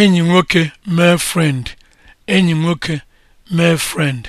enyi nwoke mee frend enyi nwoke mee frend